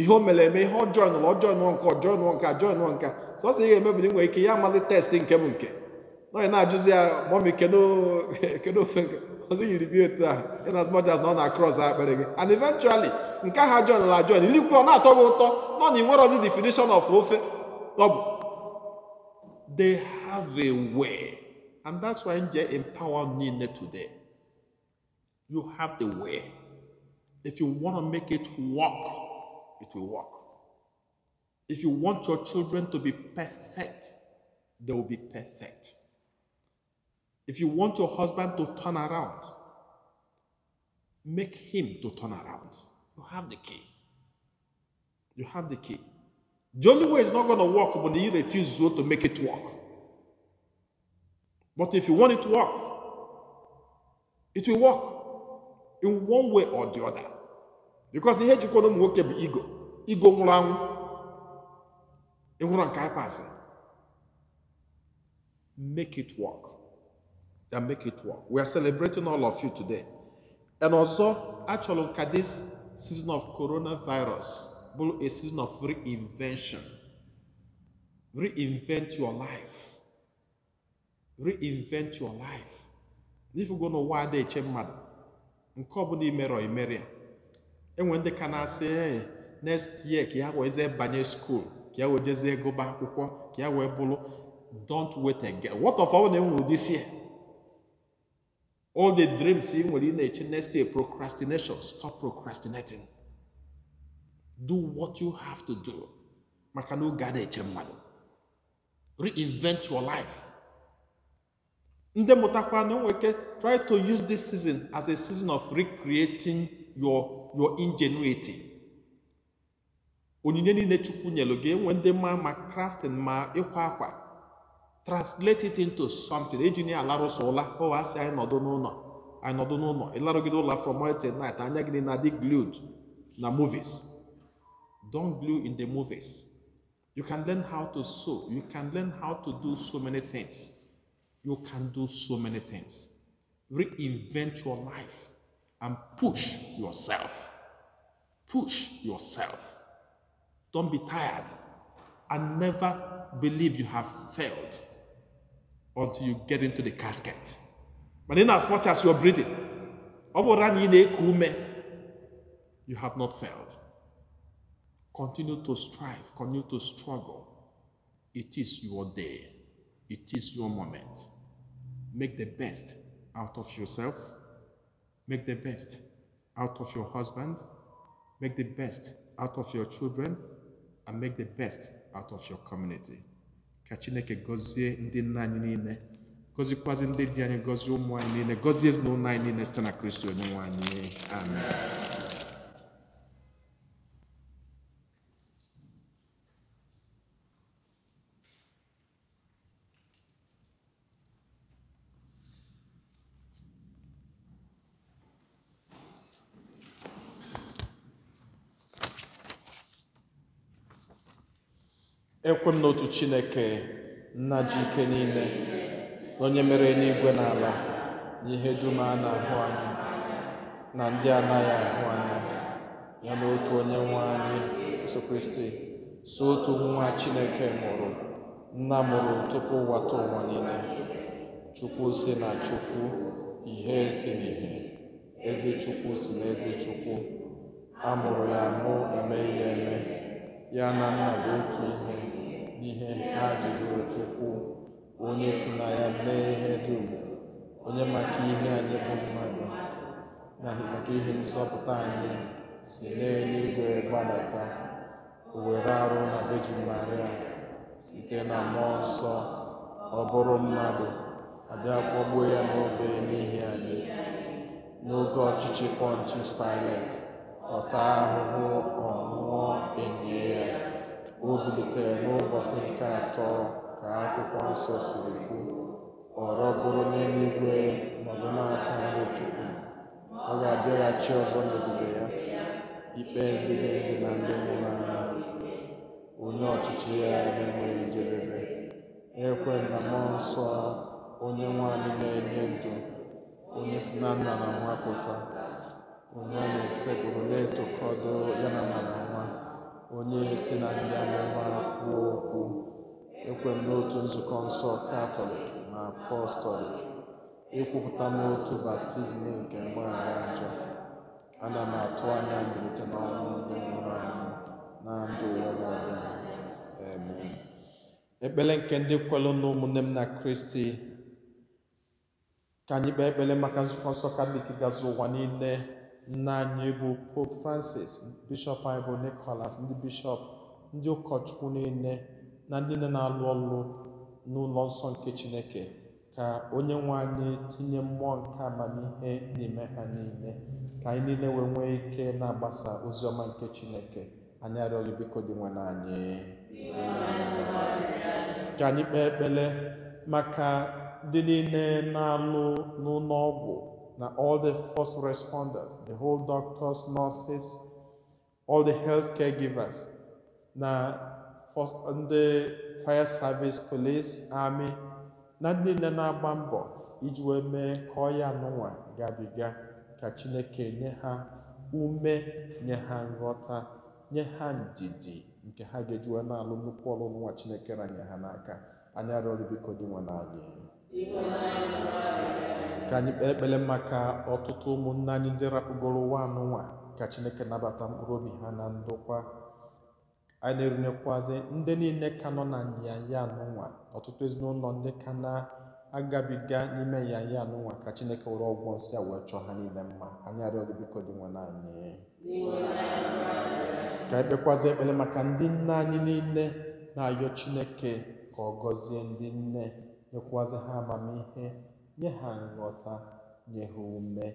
ihe o mere eme ihe ọjọọ nụrụ ọjọọ nụọ nke ọjọọ nụọ nke ajọọ nụọ nke sọsọ ihe eme bụ na ị nwere ike ya amazị testị nke m nke nọghị na-ajụzi ya mọmị kedu ofe nke ọzọ yiri bi otu a in as much as na ọ na-across uh, akpịrị gị and eventually nke aha John la John ilikwu ọ na-atọ gị ụtọ nọ na inwerọzi definition of ofe ọ bụ they have a way and that's why nje empower niile today you have the way if you want to make it work it will work if you want your children to be perfect they will be perfect If you want your husband to turn around, make him to turn around. You have the key. You have the key. The only way it's not going to work when he refuses to make it work. But if you want it to work, it will work in one way or the other. Because the ihe jikọrọ ụmụ nwoke bụ ego. Ego nwụrụ ego run nke anyị pasịrị. Make it work. and make it work. We are celebrating all of you today. And also, actually, look this season of coronavirus, a season of reinvention. Reinvent your life. Reinvent your life. If you go to why they change mad, nke ọbụla imere ọ And when they ndị say na next year ka ya wee jee banye skuul ka ya go back gụba akwụkwọ ka ya don't wait again what of name will this year all the dreams ị nwere ị na-eche next year procrastination stop procrastinating do what you have to do maka na oge a na-eche mmadụ reinvent your life ndị mụtakwa na enwe ike try to use this season as a season of recreating your your ingenuity onyinye niile chukwu nyelu gị enwe ndị ma ma crafting ma ịkwa akwa translate it into something ejini alarụsị ụla ọwa asị anyị nọdụ n'ụlọ anyị nọdụ n'ụlọ ịlarụgide ụlọ from morning till night anya gị na-adị glued na movies don't glue in the movies you can learn how to sew you can learn how to do so many things you can do so many things reinvent your life and push yourself push yourself don't be tired and never believe you have failed until you get into the casket. But in as much as you're breathing, you have not failed. Continue to strive, continue to struggle. It is your day, it is your moment. Make the best out of yourself, make the best out of your husband, make the best out of your children, and make the best out of your community. ka chineke gọzie ndị nna anyị niile gọzikwazị ndị di anyị gọzie ụmụ anyị niile gọzie ezinụlọ anyị niile site na kristi onye nwe anyị ekwe m n'otu chineke nna ji ike niile onye mere n'igwe na ala na ihe dum a na-ahụ anya na ndị anaghị ahụ anya ya na otu onye nwe anyị Jesu Kristi so otu nwa chineke mụrụ nna mụrụ tupu ụwata ụwa niile chukwu si na chukwu ihe si ihe ezi chukwu si na ezi chukwu a mụrụ ya mụ eme ihe eme ya na nna bụ otu ihe n'ihe ha jidoro chukwu onye si na ya mee ihe dum onye maka ihe anyị bụ mmadụ na maka ihe nzọpụta anyị si n'eluigwe gbadata o were arụ na vejin Maria site na mmụọ nsọ ọ bụrụ mmadụ abịa kpọgbuo ya n'obere n'ihi anyị n'oge ọchịchị Pontius Pilate ọta ahụhụ ọ nwụọ enye ya o bilitere n'ụbọchị nke atọ ka akwụkwọ nsọ siri kwuo ọrọ bụrụ n'eluigwe nọdụ n'aka nri Chukwu ọ ga-abịaghachi ọzọ n'ebube ya ikpe ndị na-ebi na ndị nwụrụ anya. onye ọchịchị ya na-enweghị njedebe ekwe na mmụọ nsọ onye nwanyị na-enye ndụ onye si na nna na nwa pụta onye a na-esepụrụ na etokọdụ ya na nna na nwa onye si na ndị amụma kwuo okwu ekwem n'otu nzukọ nsọ katọlik na apọstọlik ekwupụta n'otu baptizim nke mgbaghara njọ ana m atụ anya mbilite n'ọnwụ ndị nwụrụ anwụ na ndụ ụwa na ekpere nke ndị kwelụ na ụmụnne m na kristi ka anyị kpee ekpere maka nzukọ nsọ katọlik gazi ụwa niile nna anyị bụ Pope Francis Bishop anyị bụ Nicholas ndị Bishop ndị ụkọchukwu niile na ndị na-alụ ọlụ n'ụlọ nsọ nke Chineke ka onye nwe anyị tinye mmụọ nke amamihe n'ime ha n'ime, ka anyị niile wee nwee ike na-agbasa ozi ọma nke Chineke anyị arịọghị biko dị n'anyị. ka anyị kpee ekpere maka ndị niile na-alụ n'ụlọ ọgwụ na all the first responders, the whole doctors, nurses, all the healthcare givers, na first, ndị fire service, police, army, na ndị nne na-agba mbọ iji wee mee ka ọya n'ụwa gabiga ka Chineke nye ha ume, nye ha nghọta, nye ha ndidi nke ha ga-ejiwe na-alụ nnukwu ọrụ nwa Chineke ranye ha n'aka. Anyị arịọrọ biko dị nwe ka anyị kpee ekpele maka ọtụtụ ụmụnne anyị ndị rapụgoro ụwa nwa ka chineke nabata mkpụrụ obi ha na ndokwa anyị na-erunyekwazị ndị niile ka nọ na nyanya anụnwa ọtụtụ ezinụlọ ndị ka na-agabiga n'ime nyanya anụnwa ka chineke were ọgwọ nsị a wee chọọ ha niile mma anyị arịọ gị biko dị nwa anyị ka anyị ekpele maka ndị nne anyị niile na-ayọ chineke ka ọ gọzie ndị nne nyekwazị ha amamihe nye ha nghọta nye ha ume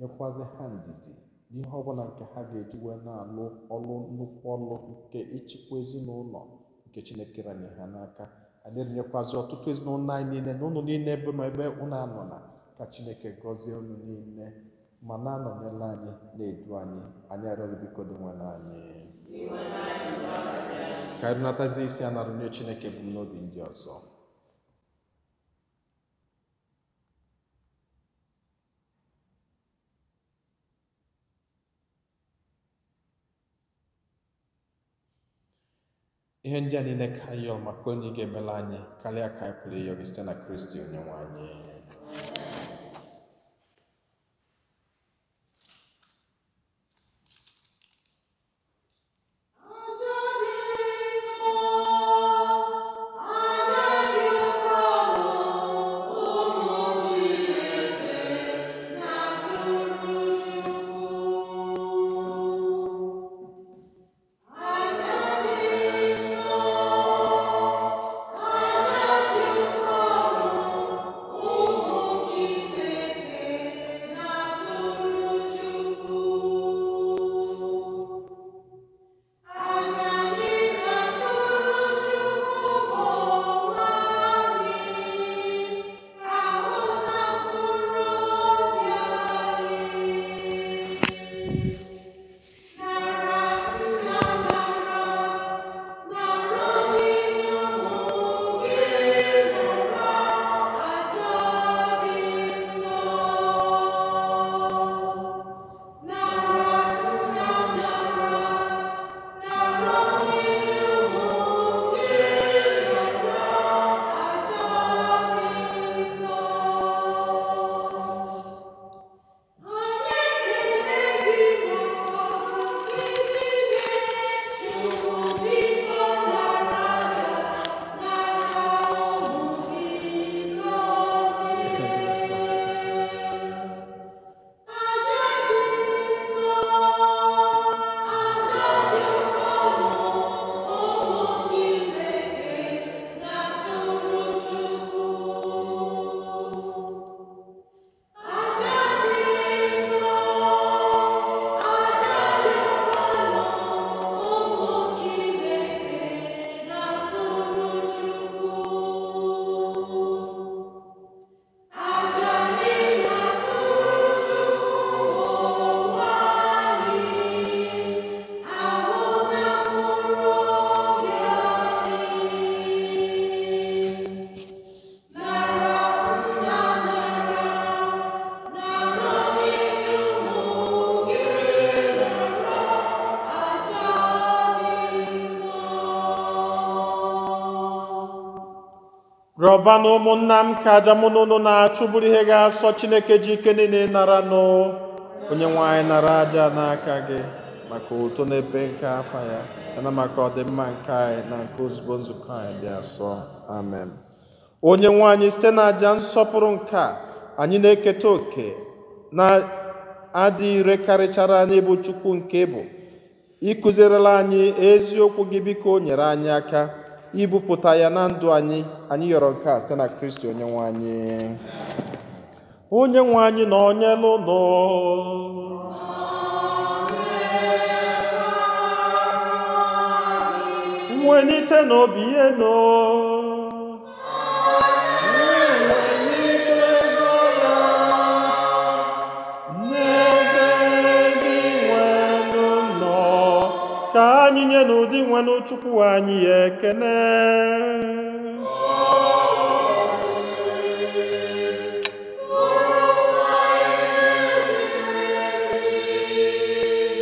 nyekwazị ha ndidi n'ihe ọbụla nke ha ga-eji wee na-alụ ọlụ nnukwu ọlụ nke ịchịkwa ezinụlọ nke chineke ranye ha n'aka adịrịnyekwazị ọtụtụ ezinụlọ anyị niile na ụlọ niile ebe ma ebe ụnụ anọ na ka chineke gọzie ụnụ niile ma na-anọnyela anyị na-edu anyị anyị arịọghị biko dị nwere anyị ka anyị natazi isi anara nye chineke n'obi ndị ọzọ ihe ndị a niile ka ihe ọma ka onye ị ga-emela anyị karịa ka anyị pụrụ site na Kristi onye nwe anyị ụba na ụmụnna m ka aja mụ na ụnụ na ihe ga-asọ Chineke ji ike niile nara nụ onye nwe nara aja n'aka gị maka uto n'ebe nke afa ya yana maka ọdịmma nke anyị na nke ozugbo nzukọ anyị dị asọ amen onye nwe site na aja nsọpụrụ nke a anyị na-eketa oke na adị ire karịchara anyị bụ Chukwu nke bụ ịkụzierela anyị eziokwu gị biko nyere anyị aka ibupụta ya na ndụ anyị anyị yọrọ nke a site na kristi onye nwe anyị onye nwe anyị na onye lụnụ nwelite n'obi ihe no onye na ụdị nwanụ chukwu anyị ya ekene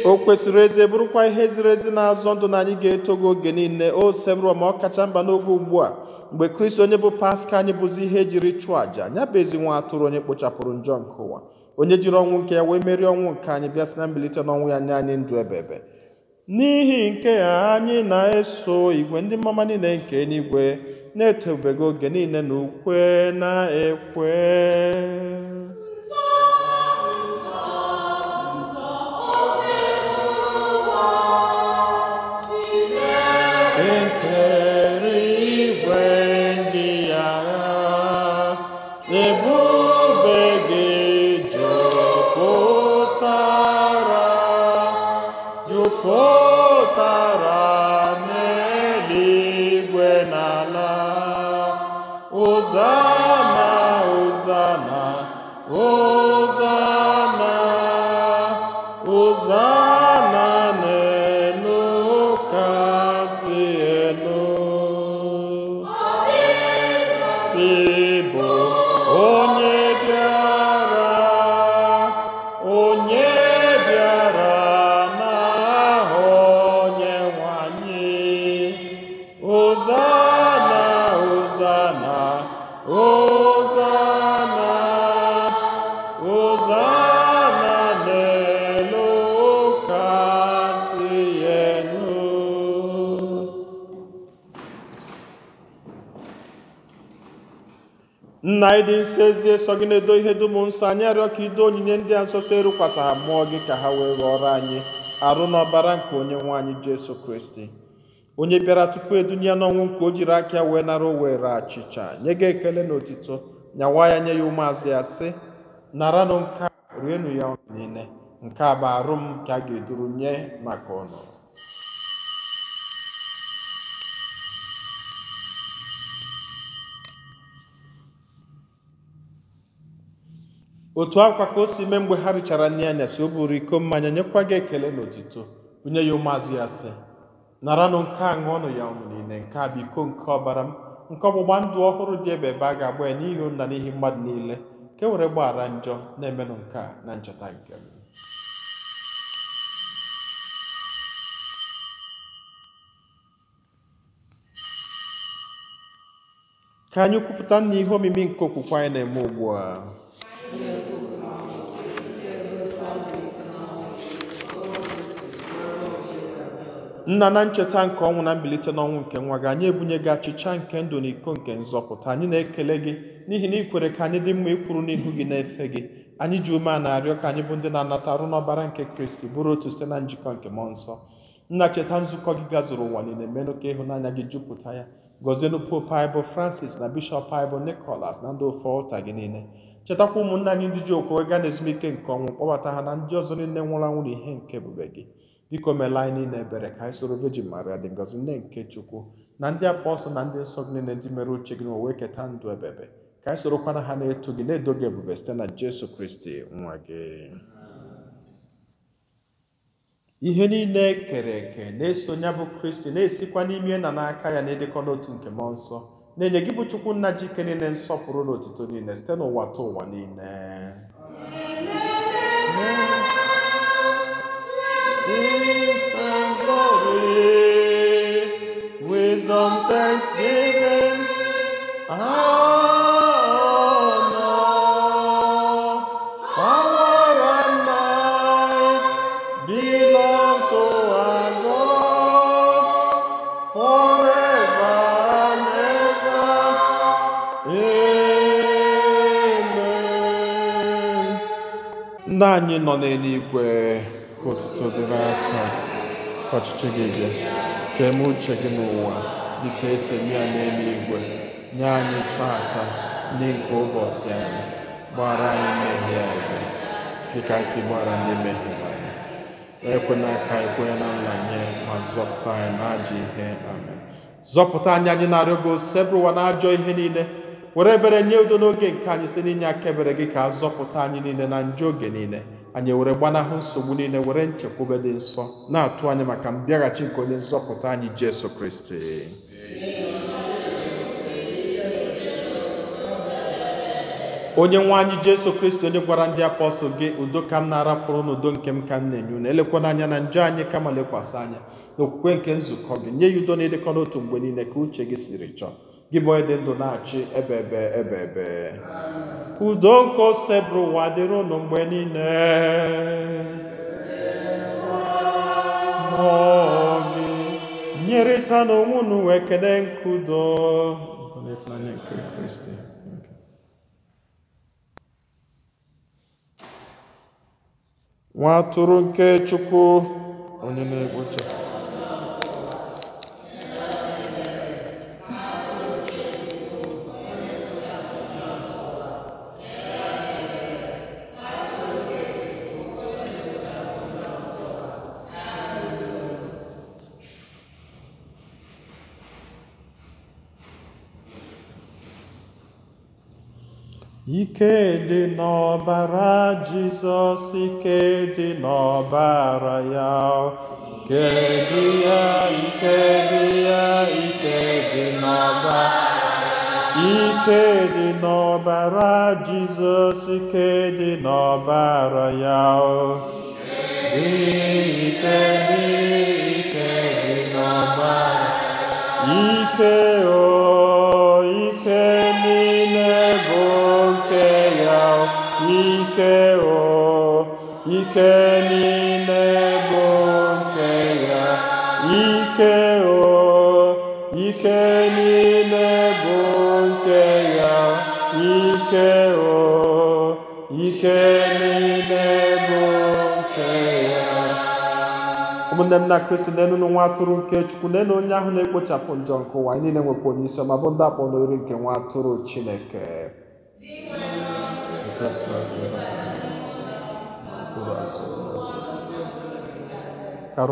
o kwesịrị ezi bụrụkwa ihe ziri ezi na-azọ ndụ na anyị ga-eto gị oge niile o ọ kacha mba n'oge ugbu a mgbe kristi onye bụ paska anyị bụzi ihe jiri chụọ àja nya bụ ezi nwa atụrụ onye kpochapụrụ njọ nke ụwa onye jiri ọnwụ nke ya wee merie ọnwụ nke anyị bịa si na mbilite n'ọnwụ ya nye anyị ndụ ebebe n'ihi nke a anyị na-eso igwe ndị mmama niile nke enigwe na-etobego oge niile na ukwe na-ekwe nna anyị dị nsọ ezi eso gị na-edo ihe dum nsọ anyị arịọ ka ido onyinye ndị a nsọ so ha mmụọ gị ka ha wee ghọrọ anyị arụ n'ọbara nke onye nwe anyị jesu kristi onye bịara tupu edunye n'ọnwụ nke o jiri aka ya wee nara owere achịcha nye gị ekele na otito nyawa ya nye ya ụmụazụ ya sị nara nụ nke rienụ ya niile nke a bụ arụ m ka a ga-eduru nye maka ọnụ otu akwa ka o si mee mgbe ha richara nri anyasị o buru iko mmanya nyekwa gị ekele n'otuto onye ya ụmụazị ya sị naranụ nke a ṅụọnụ ya ọṅụ niile nke a bụ iko nke ọbara m nke ọgbụgba ndụ ọhụrụ dị ebe ebe a ga-agba ya n'ihi ụnna n'ihi mmadụ niile ka e were gbaghara njọ na-emenụ nke a na ncheta nke m ka anyị kwupụta na ihe omimi nke okwukwe anyị na-eme ugbu a nna na ncheta nke ọnwụ na mbilite n'ọnwụ nke nwa gị anyị ebunye gị achịcha nke ndụ na iko nke nzọpụta anyị na-ekele gị n'ihi na ị kwere ka anyị dị mma ịkwụrụ n'ihu gị na-efe gị anyị ji ume a na-arịọ ka anyị bụ ndị na-anata arụ n'ọbara nke kristi bụrụ otu site na njikọ nke mmụọ nsọ nna cheta nzukọ gị gazuru ụwa niile menụ ka ịhụnanya gị jupụta ya gọzienụ pope anyị francis na bishọp anyị nicolas na ndị ofe gị niile chetakwa ụmụnna anyị ndị ji okwu wee gaa n'ezumike nke ọnwụ kpọbata ha na ndị ọzọ niile nwụrụ anwụ na ihe nke ebube gị biko meela anyị niile ebere ka anyị soro vejin maria dị ngozi nne nke chukwu na ndị apọstụl na ndị nsọ niile ndị mere uche gị ma wee keta ndụ ebebe ka anyị sorokwana ha na-eto gị na-edo gị ebube site na jesu kristi nwa gị ihe niile kere eke na-eso bụ kristi na-esikwa n'ime na n'aka ya na ịdịkọ n'otu nke mmụọ nsọ na-enye gị bụ chukwu nna ji ike niile nsọpụrụ na otuto niile site n'ụwa ta ụwa niile Wisdom, thanksgiving. ndị anyị nọ n'eluigwe ka otuto dịrị afọ ka ọchịchị gị bịa ka eme uche gị n'ụwa dịka esi eme ya n'eluigwe nye anyị taata ndị nke ụbọchị anyị gbara anyị mmehie anyị dịka si gbara ndị mmehie anyị ekwena ka anyị kwenye na nranye ma zọpụta anyị na n'ajọ ihe amen zọpụta anyị anyị narịọ gị osisi ebụrụwa n'ajọ ihe niile were ebere nye udo n'oge nke anyị site n'inye aka ebere gị ka a zọpụta anyị niile na njọ oge niile anyị were gbanahụ nsogbu niile were nchekwube dị nsọ na-atụ anyị maka mbịaghachi nke onye nzọpụta anyị Jesu Kristi onye nwe anyị Jesu Kristi onye gwara ndị apọstụl gị udo ka m na-arapụrụ n'udo nke m ka m na-enye unu elekwana anya na njọ anyị ma lekwasị anya n'okwukwe nke nzukọ gị nye ya udo na-edekọ n'otu mgbe niile ka uche gị siri chọọ gị bụ onye dị ndụ na-achị ebe ebe ebe ebe udo nke ose bụrụ ụwa dịrị mgbe niile gị nyerịta n'onwe unu wee kelee nke udo nke nwa atụrụ nke Chukwu onye na egbocha Ike dị n'ọbara Jizọs, ike dị n'ọbara ya. Ike dị ya, ike dị ya, ike dị n'ọbara Ike dị n'ọbara Jizọs, ike dị n'ọbara ya. Ike dị, ike dị n'ọbara Ike o. 이케오 이케니 네본케야 이케오 이케니 네본케야 이케오 이케니 네본케야 ụmụnne kristi na-enu n'nwa atụrụ nke chukwu na-enu onye ahụ na-ekpochapụ njọ nke ụwa anyị niile nwekwa onye isi ọma bụ ndị akpọ n'ori nke nwa atụrụ chineke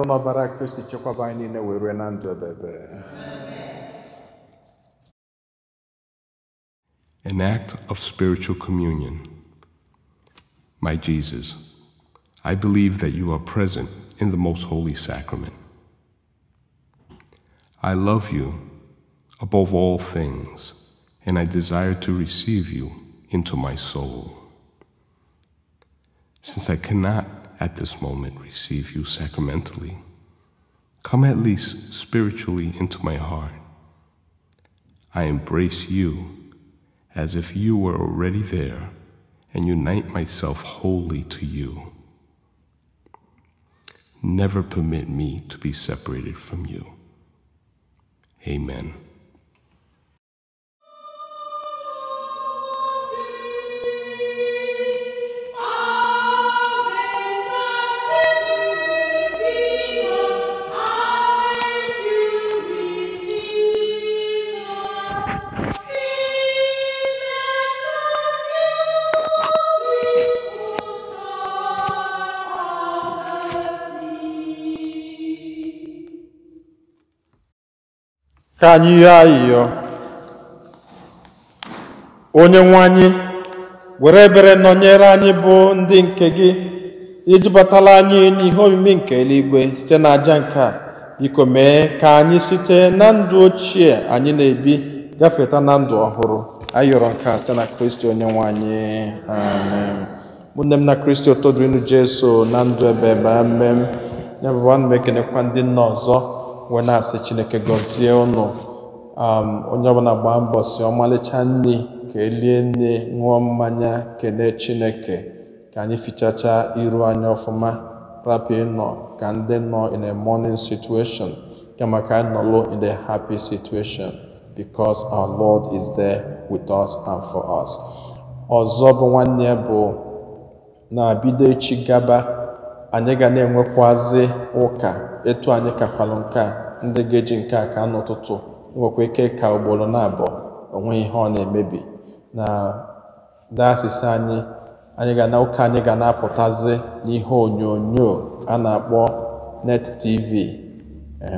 n'ọbara kristi chekwaba anyị niile were na ndụ ebebe An act of spiritual communion. My Jesus, I believe that you are present in the most holy sacrament. I love you above all things, and I desire to receive you into my soul. Since I cannot at this moment receive you sacramentally, come at least spiritually into my heart. I embrace you as if you were already there and unite myself wholly to you. Never permit me to be separated from you. Amen. ka anyị onye nwe anyị were ebere nọnyere anyị bụ ndị nke gị ijubatala anyị n'ihe omimi nke eluigwe site na aja nke a biko mee ka anyị site na ndụ ochie anyị na-ebi gafeta na ndụ ọhụrụ ayọrọ nke a site na kristi onye nwe anyị amen m na kristi ụtọ dịrịnụ jesu na ndụ ebe ebe ekenekwa ndị nna ọzọ wee na-asị chineke gọzie ụnụ um, onye ọbụla gbaa mbọ si ọmalịcha nri ka elie nne ṅụọ mmanya kelee chineke ka anyị fichacha iru anyị ọfụma rapi nọ ka ndị nọ in a morning situation kama ka anyị nọlụ in a happy situation because our lord is there with us and for us ọzọ bụ nwanne bụ na-bido echi gaba anyị ga na-enwekwazi ụka etu anyị kakwalụ nke ndị ga-eji nke a ka n'ụtụtụ nwekwa ike ka ugboro na-abụọ onwe ihe ọ na-emebi na dayọsis anyị anyị ga na ụka anyị ga na-apụtazi n'ihe onyonyo a na-akpọ net tv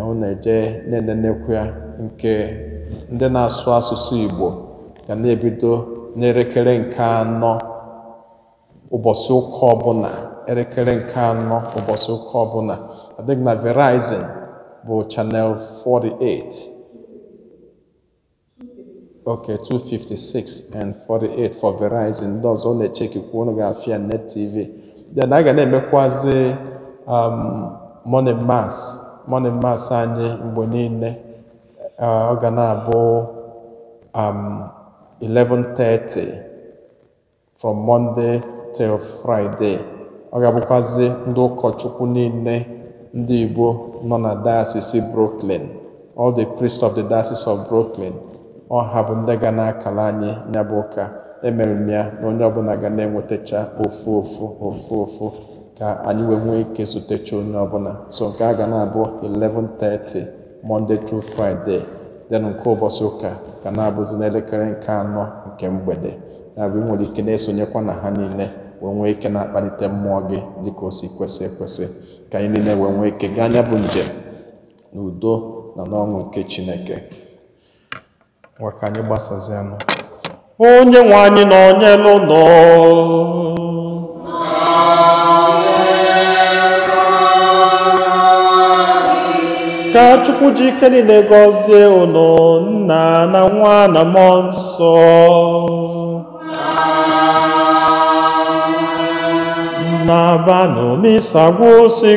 ọ na-eje na-enenekwa nke ndị na-asụ asụsụ igbo ga na-ebido n'elekere nke anọ ụbọchị ụka ọbụla elekere nke anọ ụbọchị ụka ọbụla adịghị na verizon bụ channel 48 okay 256 and 48 for Verizon ndị ọ na-echekikwa unu ga-afịa net tv then a na-emekwazi um, morning mass morning mass anyị mgbe niile uh, ọ gana abụ um, 11:30 from Monday till Friday ọ ga abụkwazị ndị ụkọchukwu niile ndị Igbo nọ na dayọsis Brooklyn all the priests of the Diocese of Brooklyn ọ ha bụ ndị ga na-akala anyị ya bụ ụka emere m ya na onye ọbụla ga na-enwetacha ofu ofu ofu ofu ka anyị wee nwee ike zutecha onye ọbụla so nke a ga na-abụ 11:30 Monday through Friday then nke ụbọchị ụka ga na-abụzi n'elekere nke anọ nke mgbede na-abụ nwere ike na-esonyekwa na ha niile wee nwee ike na-akpalite mmụọ gị dịka o si kwesị ekwesị ka anyị niile wee nwee ike gaa anya bụ njem na udo na n'ọṅụ nke Chineke nwa ka anyị gbasazianụ onye nwe anyị na onye n'ụlọ ka Chukwu ji ike niile gọzie ụnụ nna na nwa na mmụọ nsọ na banu mi sagusi